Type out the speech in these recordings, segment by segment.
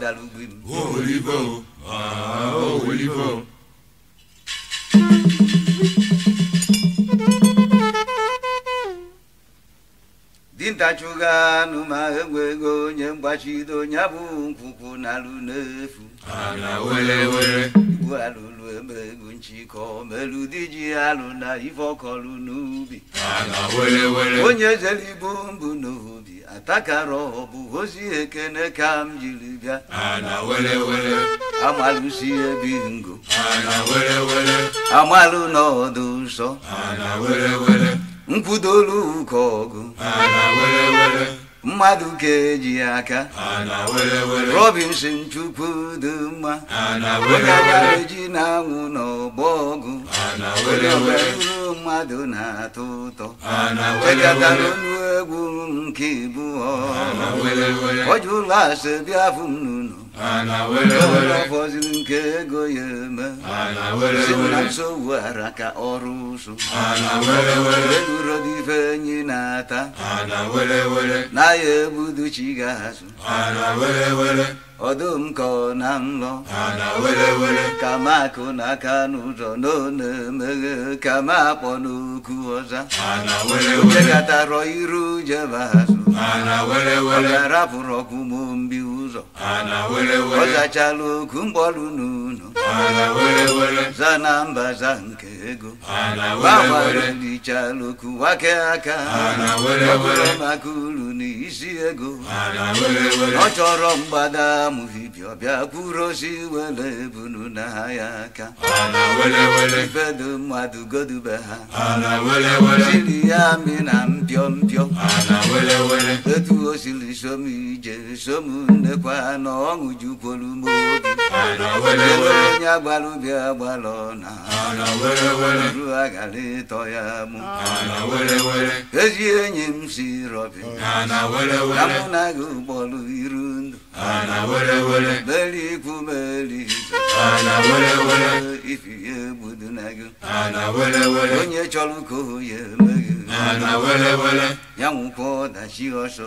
dalu gbim. Wo wòlíbọ̀ o, àá ah, ó wòlíbọ̀ o. anụ ma enwe ego onye mgbachido ya bụ nkwụkwụ na alụ n'efu igbo alụlụ eme ego nchịkọ melụ di ji alụ na ife ọkọlụ n'ubi onye jere ibu mbụ n'obi atakara ọbụ ozi ekene ka m jiri bịa si ebi ngo amalụ n'ọdụ nsọ nkwụdolu ụka ọgụ mmadụ ka eji aka robinson chukwu dị mma ji na-anwụ n'ọgbọ ọgụ ụrụ mmadụ na-atọ ụtọ chekatara ọnụ egwu nke ibu ọ jụla asị bịa fụ ana unu ọfọziri nke ego ya eme sị na nsogbu ara ka ọrụ ụsụ eluro dị ife enyi na-ata n'ahịa ebudu chi ga-azụ ọdụm ka ọ na nlọ ka m akụ n'aka n'ụzọ n'one emeghe ka m akpọ n'okwu ọza jekọtarọ iru jebe azụ ọ ga-arapụrụ ọkụ mụ mbi ụzọ ọzachala ogu mgbọrụ n'unu zanamba za nke ego gbanwarụlichala oku wake aka maka uru n'isi ego ọ chọrọ mgbada amụhibi ọbịa kwuru ozi wele ebunu na ha ya aka ifedo mmadụ godube ha siri ya amị na mpio mpio etu o siri som ije som na ọṅụ jukwuru m obi onye agbara ubi agbara ọna ru agara ịtọ ya mụ ezi enyi m si rọbi na mụ na gị ụgbọrụ iru ndụ meri ikwu meri ifi ya na gị onye chọrọ ka o ya eme gị ya nwụkwa ọdachi ọsọ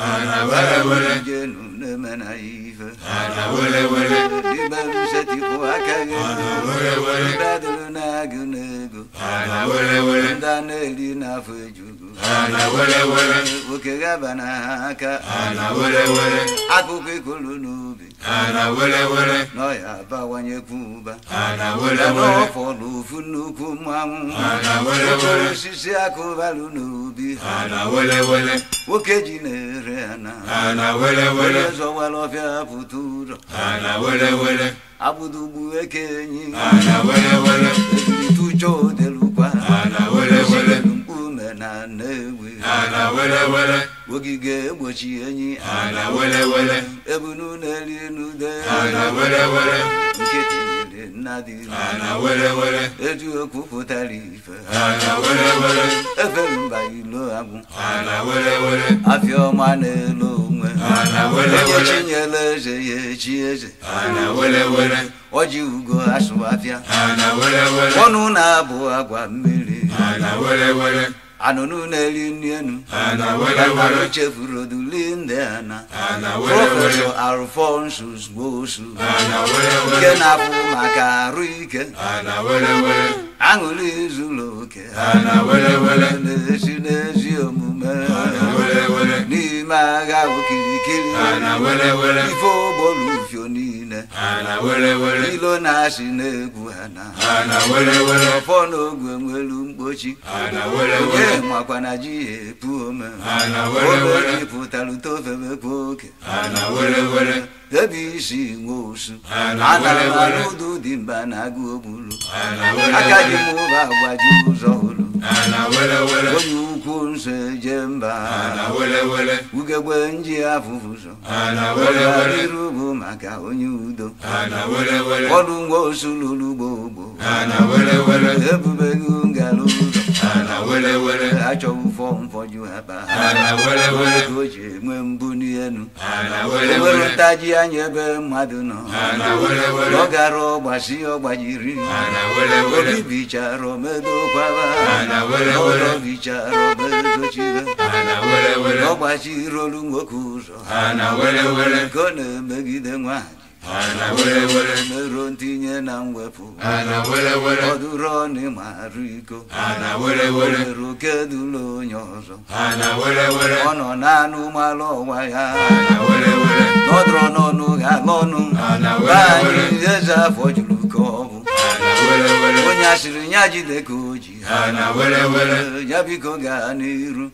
أنا ولا ولا جنون من عيفة أنا ولا ولا دبا مشتي قواكا أنا ولا ولا بدلنا جنجو أنا ولا ولا دانا لينا فجو ana were were oke gabana aka ana were were akụkọ ikolu n'ubi ana were were n'ọya abawanye kuba. ana were were n'ọfọdụ ofu nnukwu mmanwụ ana were were osisi akụbalụ n'ubi ana were were nwoke ji na-ere ana ana were were zọwara ọfịa pụta ụrọ ana were were agbụdugbu enyi. ana were were ebili tụjọ ana were were ogige egbochi enyi ana were were ebunu na-eri elu de ana were were nkịtị nyere nna dị ana were were eji okwu pụtara ife ana were were Efe mba ilo agwụ ana were were afịa ọma na-elo onwe ana were were nyele eze ya echi eze ana were were ọjị ugo asụ afịa ana were were ọnụ na-abụ agwa mmiri ana were were anụnụ na-eri nri enu ewere chefuru oduli ndị ana prọfesọ alfonsus gbosu nke na-abụ maka arụ ike aṅụrị zuru oke na-esi n'ezi omume n'ime agha okirikiri ife ogbolu ufio niile ilo na-asị ọfọ n'oge nwelu mkpochi e makwa na ji ya epu ome obere pụtara utofemekwa oke debe isi nwe osu atara m dị mba na agụ ogburu aka dị A na agbaji ụzọ ụlọ onye ukwu nso eje mba ugegbe nji afụfụzọ iru bụ maka onye udo ọdụ nwa osu lụrụ ugbo ebube gị ngara ụzọ achọghị ụfọ mfọju ha ba o ji enwe mbụ n'elu ewerụtaji anya ebe mmadụ nọ ọ gara ọgbasi ọgbajiri obi bichara omedokwaba ọrọ bichara omedochibe ọgbachirolu nwoke ụzọ ka ọ na-emegide nwaanyị ana were were ntinye na mwepụ ana were were ọdụrụ ọnị iko ana were were kedụlụ onye ọzọ ọ nọ n'anụ malụ ya n'ọdụrụ n'ọnụ ga n'ọnụ. ana anyị eze afọ juru nke ọnwụ onye asịrị ya jide ka o ji ya biko gaa n'iru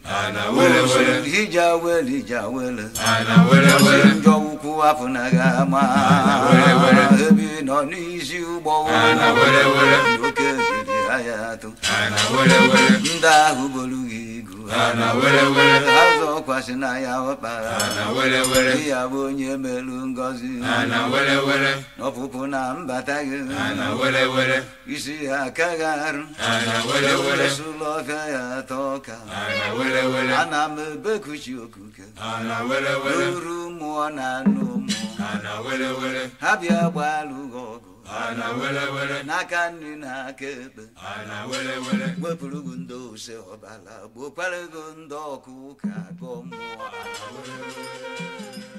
iji awele iji awele njọ ụkwụ afọ na gị ama ebi nọ n'isi ụgbọ oke biri ahịa Ana ndị ahụ bolu gị na were were azụ ọkwasị na ya ọkpara na were were di ya bụ onye melu Ngozi. na were were n'ọpụpụ na mbata gị na were were isi ya aka gị arụ na were were sụlọ ọfịa ya atọ ọka na were were ana m ebekuchi okuke na were were n'uru mmụọ na anụ mmụọ na were were ha bịa gbaa alụ ọgụ ana wele wele n'aka nri na aka ekpe ana wele wele wepụrụ gị ndị ose ọbara gbokwara gị ndị ọkụ ụka gọ mmụọ ana wele wele